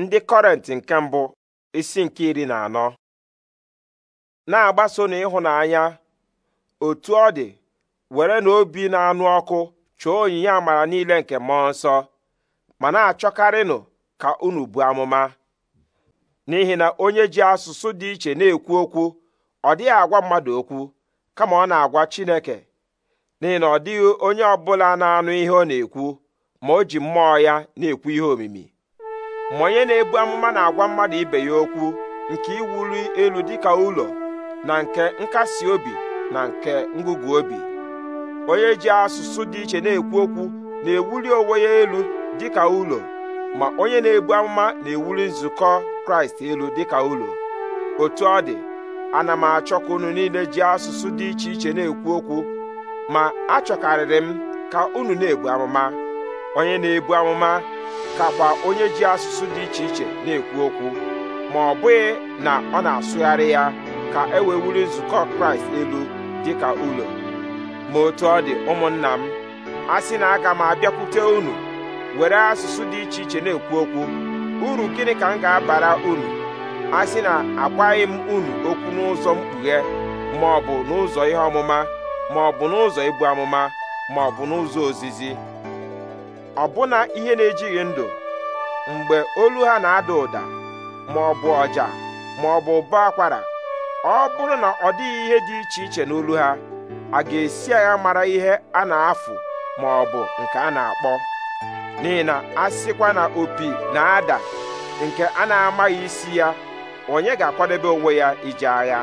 ndị kọrent nke mbụ isi nke iri na anọ na-agbaso na ịhụnanya otu ọ dị were na obi na-anụ ọkụ chọọ onyinye amara niile nke mmụọ nsọ ma na-achọkarịnụ ka unu bụ amụma n'ihi na onye ji asụsụ dị iche na-ekwu okwu ọ dịghị agwa mmadụ okwu kama ọ na-agwa Chineke n'ihi na ọ dịghị onye ọbụla na-anụ ihe ọ na-ekwu ma o ji mmụọ ya na-ekwu ihe omimi ma onye na-ebu amụma na-agwa mmadụ ibe ya okwu nke iwuli elu dịka ụlọ na nke nkasi obi na nke ngụgụ obi onye ji asụsụ dị iche na-ekwu okwu na-ewuli onwe ya elu dịka ụlọ ma onye na-ebu amụma na-ewuli nzukọ kraịst elu dịka ụlọ otu ọ dị ana m achọka ụnụ unu niile ji asụsụ dị iche iche na-ekwu okwu ma achọkarịrị m ka unu na-ebu amụma onye na-ebu amụma kakwa onye ji asụsụ dị iche iche na-ekwu okwu ma ọ bụghị na ọ na-asụgharị ya ka e wee nzukọ kraịst elu dị ka ụlọ ma otu ọ dị ụmụnna m a sị na aga m abịakwute unu were asụsụ dị iche iche na-ekwu okwu uru gịnị ka m ga-abara unu a sị na agwaghị m unu okwu n'ụzọ mkpughe ma ọ bụ n'ụzọ ihe ọmụma ma ọ bụ n'ụzọ ibu amụma ma ọ bụ n'ụzọ ozizi ọbụna ihe na-ejighị ndụ mgbe olu ha na-ada ụda maọbụ ọ bụ ọja ma bụ ụbọ akwara ọ bụrụ na ọ dịghị ihe dị iche iche n'olu ha a ga-esi agha mara ihe a na-afụ maọbụ ọ nke a na-akpọ n'ihi na a sịkwa na opi na-ada nke a na-amaghị isi ya onye ga-akwadebe onwe ya ije agha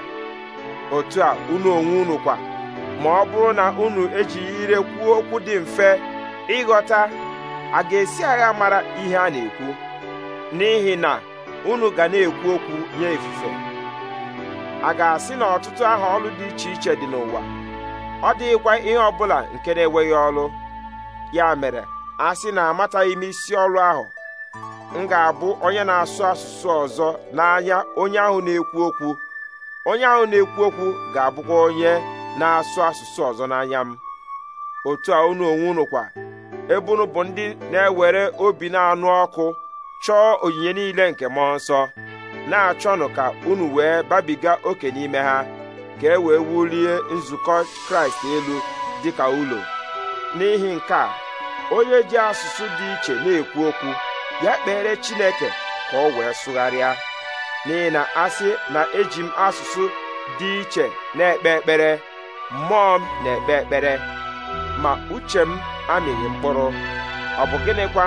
otu a unu onwe unu kwa ma ọ bụrụ na unu ejighị ire kwuo okwu dị mfe ịghọta a ga-esi agha mara ihe a na-ekwu n'ihi na unu ga na-ekwu okwu nye ifufe a ga-asị na ọtụtụ aha ọlụ dị iche iche dị n'ụwa ọ dịghịkwa ihe ọbụla nke na-enweghị ọlụ ya mere a sị na amataghị m isi ọlụ ahụ m ga-abụ onye na-asụ asụsụ ọzọ n'anya onye ahụ na-ekwu okwu onye ahụ na-ekwu okwu ga-abụkwa onye na-asụ asụsụ ọzọ n'anya m otu a unu onwe unu kwa ebe unu bụ ndị na-ewere obi na-anụ ọkụ chọọ onyinye niile nke mmụọ nsọ na-achọnụ ka unu wee babiga oke n'ime ha ka e wee wulie nzukọ kraịst elu dị ka ụlọ n'ihi nke a onye ji asụsụ dị iche na-ekwu okwu ya kpere chineke ka ọ wee sụgharịa n'ihi na asị na eji m asụsụ dị iche na-ekpe ekpere mmụọ m na-ekpe ekpere ma uche m amịghị mkpụrụ ọ bụ gịnịkwa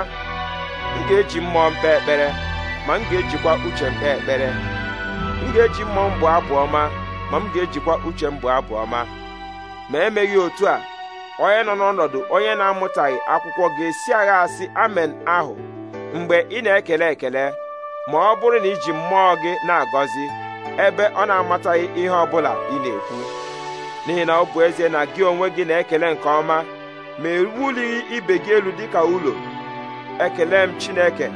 m ga-eji mmụọ m ekpere ma m ga-ejikwa uche m ekpere m ga-eji mmụọ m bụ ma m ga-ejikwa uche m bụ abụ ọma ma emeghị otu a onye nọ n'ọnọdụ onye na-amụtaghị akwụkwọ ga-esi agha asị amen ahụ mgbe ị na-ekele ekele ma ọ bụrụ na iji mmụọ gị na-agọzi ebe ọ na-amataghị ihe ọ bụla ị na-ekwu n'ihi na ọ bụ ezie na gị onwe gị na-ekele nke ọma ma ewulighị ibe gị elu dịka ụlọ ekele m Chineke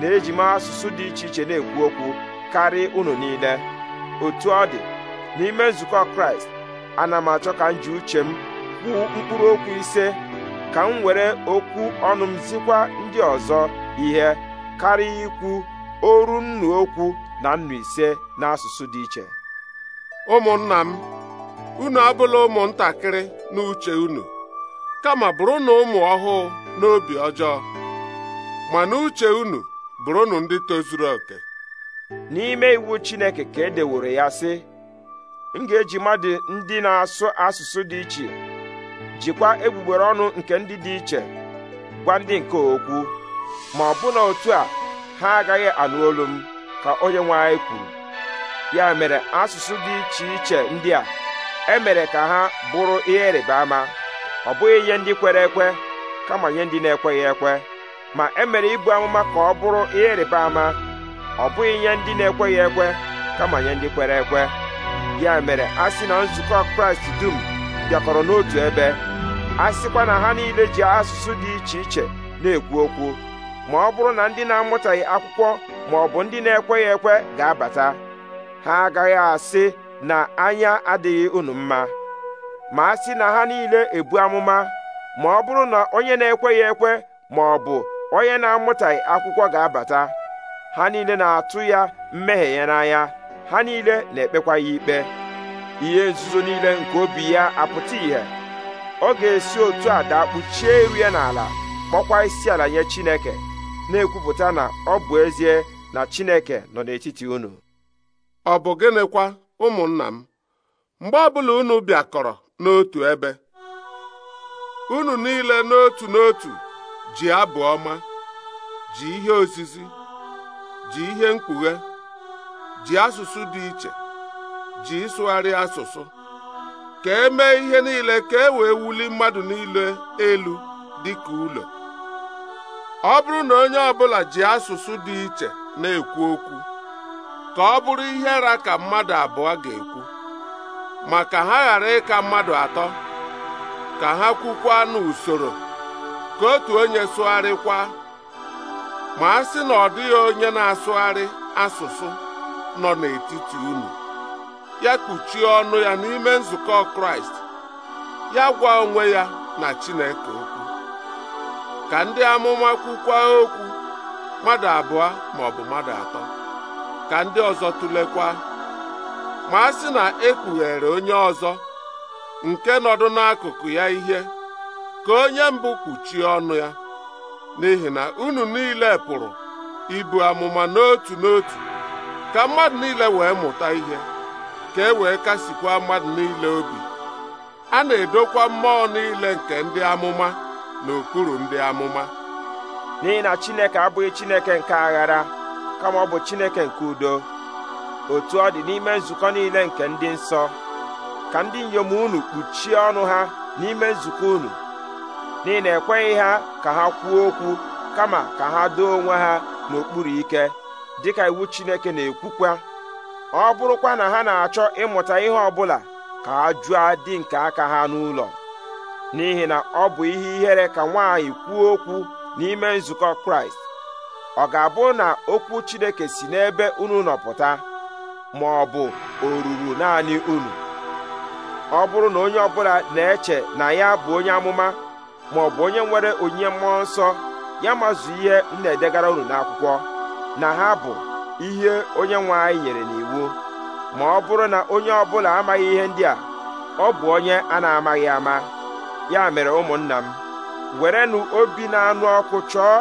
na-eji m asụsụ dị iche iche na-ekwu okwu karịa unu niile otu ọ dị n'ime nzukọ Kraịst ana m achọ ka m ji uche m kwuo mkpụrụ okwu ise ka m were okwu ọnụ m zikwa ndị ọzọ ihe karịa ikwu oru nnu okwu na nnu ise n'asụsụ dị iche ụmụnna m unu abụla ụmụntakịrị n'uche unu kama bụrụnụ ụmụ ọhụụ n'obi ọjọọ ma n'uche unu bụrụnụ ndị tozuru oke n'ime iwu Chineke ka e deworo ya sị m ga-eji mmadụ ndị na-asụ asụsụ dị iche jikwa egbugbere ọnụ nke ndị dị iche gwa ndị nke okwu ma ọ na otu a ha agaghị anụ olu m ka onye nwe anyị kwuru ya mere asụsụ dị iche iche ndị a emere ka ha bụrụ ihe ịrịba ama ọ bụghị ihe ndị kwere ekwe kama nye ndị na-ekweghị ekwe ma emere ibu amụma ka ọ bụrụ ihe ịrịba ama ọ bụghị ihe ndị na-ekweghị ekwe kama nye ndị kwere ekwe ya mere a sị na nzukọ kraịst dum bịakọrọ n'otu ebe a sịkwa na ha niile ji asụsụ dị iche iche na-ekwu okwu ma ọ bụrụ na ndị na-amụtaghị akwụkwọ ma ọ bụ ndị na-ekweghị ekwe ga-abata ha agaghị asị na anya adịghị unu mma ma a sị na ha niile ebu amụma ma ọ bụrụ na onye na-ekweghị ekwe ma ọ bụ onye na-amụtaghị akwụkwọ ga-abata ha niile na-atụ ya mmehie ya n'anya ha niile na-ekpekwa ya ikpe ihe nzuzo niile nke obi ya apụta ìhè ọ ga-esi otu a kpuchie iru ya n'ala kpọkwa isi ala nye Chineke na-ekwupụta na ọ bụ ezie na Chineke nọ n'etiti unu ọ bụ gịnịkwa ụmụnna m mgbe ọbụla unu bịakọrọ n'otu ebe unu niile n'otu n'otu ji abụ ọma ji ihe osisi, ji ihe mkpughe ji asụsụ dị iche ji ịsụgharị asụsụ ka e mee ihe niile ka e wee wuli mmadụ niile elu dị ka ụlọ ọ bụrụ na onye ọbụla ji asụsụ dị iche na-ekwu okwu ka ọ bụrụ ihe ara ka mmadụ abụọ ga-ekwu ma ka ha ghara ịka mmadụ atọ ka ha kwukwa n'usoro ka otu onye sụgharịkwa ma a sị na ọ dịghị onye na-asụgharị asụsụ nọ n'etiti unu ya kpuchie ọnụ ya n'ime nzukọ Kraịst ya gwa onwe ya na Chineke okwu ka ndị amụma kwukwa okwu mmadụ abụọ ma mmadụ atọ ka ndị ọzọ tụlekwa ma a sị na ekpughere onye ọzọ nke nọdụ n'akụkụ ya ihe ka onye mbụ kpuchie ọnụ ya n'ihi na unu niile pụrụ ibu amụma n'otu n'otu ka mmadụ niile wee mụta ihe ka e wee kasikwa mmadụ niile obi a na-edokwa mmụọ niile nke ndị amụma n'okpuru ndị amụma n'ihi na Chineke abụghị Chineke nke aghara kama ọ bụ Chineke nke udo otu ọ dị n'ime nzukọ niile nke ndị nsọ ka ndị inyom unu kpuchie ọnụ ha n'ime nzukọ unu n'ihi na ekweghị ha ka ha kwuo okwu kama ka ha doo onwe ha n'okpuru ike dịka iwu Chineke na-ekwukwa ọ bụrụkwa na ha na-achọ ịmụta ihe ọbụla ka ha jụọ dị nke aka ha n'ụlọ n'ihi na ọ bụ ihe ihere ka nwaanyị kwuo okwu n'ime nzukọ Kraịst ọ ga-abụ na okwu Chineke si n'ebe unu nọpụta ma ọ bụ o ruru naanị unu ọ bụrụ na onye ọbụla na-eche na ya bụ onye amụma ma ọ bụ onye nwere onyinye mmụọ nsọ ya mazụ ihe m na-edegara unu n'akwụkwọ na ha bụ ihe onye nwe anyị nyere n'iwu ma ọ bụrụ na onye ọbụla amaghị ihe ndị a ọ bụ onye a na-amaghị ama ya mere ụmụnna m werenụ obi na-anụ ọkụ chọọ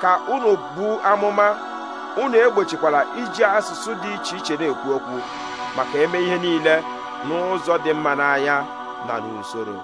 ka unu bụ amụma unu egbochikwara iji asụsụ dị iche iche na-ekwu okwu maka eme ihe niile n'ụzọ dị mma n'anya na n'usoro